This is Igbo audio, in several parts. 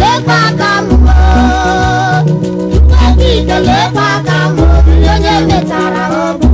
lekwa aka mụrụ tupu ebe ite lekwa aka mụrụ onye metara ọbụ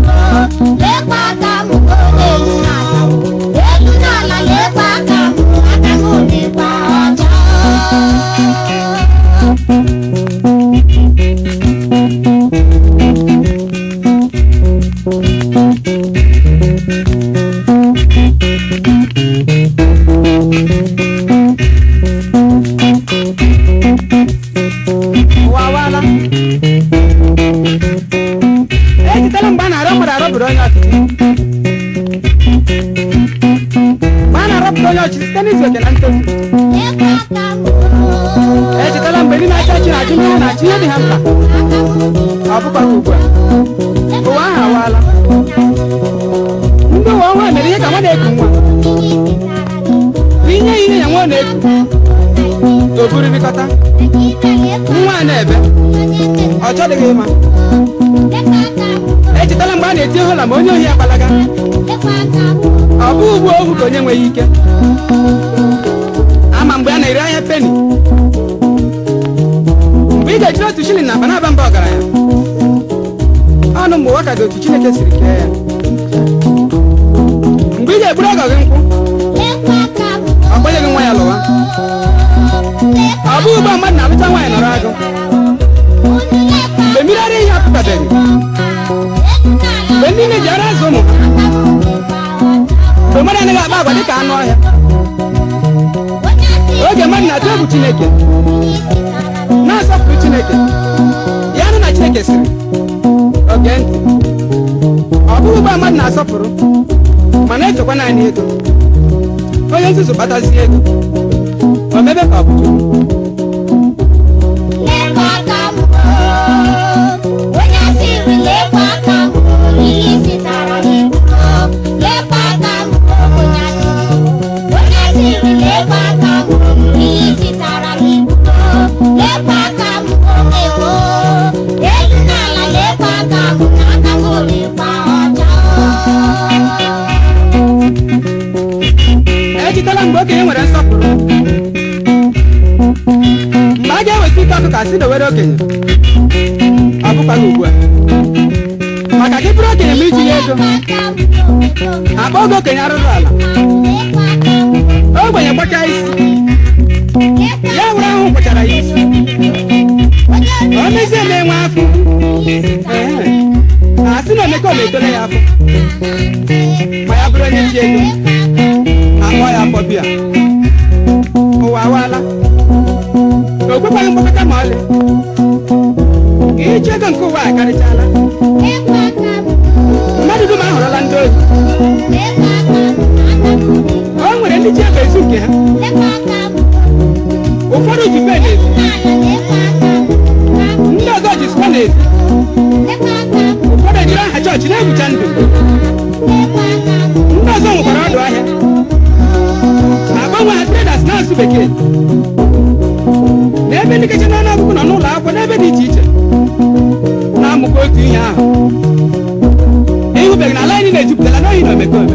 ọchị site n'izete na ntozu echetala mgbe ndị na-acha chi na-ajụ mmiri na chi ihe dị ha mkpa ọ bụkwa ugbu a ụwa ahụ awaala ndị ụwa ọhụrụ mere ihe ka nwa na-eku nwa bụ inye ihe ya nwa na-eku o buririkọta nwa a na-ebe ọ chọdịghị ịma echetala eh, mgbe a na-eti hola ma onye ohi ya agbalaga ọ bụ ugwu ohu ka onye nweghị ike ama mgbe a na-eri anya peni mgbe ị ga-ejiri otu shilling na banaba mba ọgaranya ọnụ mgbe ụwa ka dị otu chineke siri kee ya mgbe ị ga-eburu ọgọ gị nkwụ ọ nwa ya lụwa ọ bụ ugbo mmadụ na alụcha nwaanyị nọrọ agụ anaghị akpa dị ka anụ ọhịa oge mmadụ na-atụ egwu chineke na-asọpụrụ chineke ya nụ na chineke siri oge ndụ ọ bụghị ụgbọ mmadụ na-asọpụrụ mana echekwa naanị ego onye nzuzu kpatazie ego erutela mgbe okenye e nwere nsọpụrụ mgbe a ga-eweta ike ọkụ ka si dowere okenye ọ ugbu a maka gị bụrụ okenye ma ya ego akpa oge okenye arụrụ ala ogbenye kpọchaa isi ya were ahụ kpọchara ya isi ọ mezie na enwe afọ a sị na omeka ometole ya afọ ma ya bụrụ onye ji ego nwa ya akpọ biya ụwa awaala o kwekwaghị mgbakọta ma ọlị iji ego nke ụwa akarịchala dị dum ahụrụla ndị ohi o nwere ndị ji ego ezu nke ha ụfọdụ ji pen nkeji na ọgụgụ nọ n'ụlọ akwụkwọ n'ebe dị iche iche na-amụkwa otu ihe ahụ ịhụbeghị na ala anyị na-ejupụtara n'ohi na omekome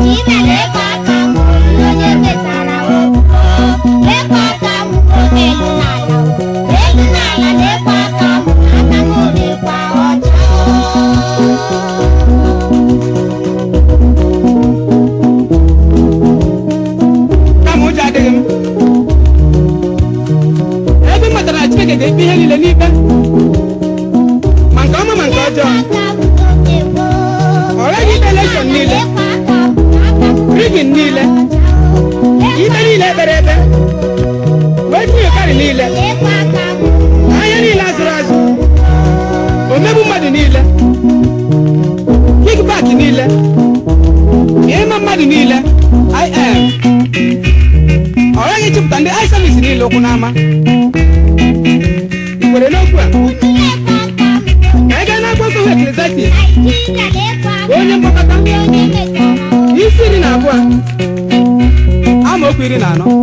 Naijiria na-ebe ka ndị aị savis niile okwu n'ama ị kwere n'okwu a ma ị gaa nsọ eklezatis onye mkpọkọta isi iri na abụọ amaokwu iri na anọ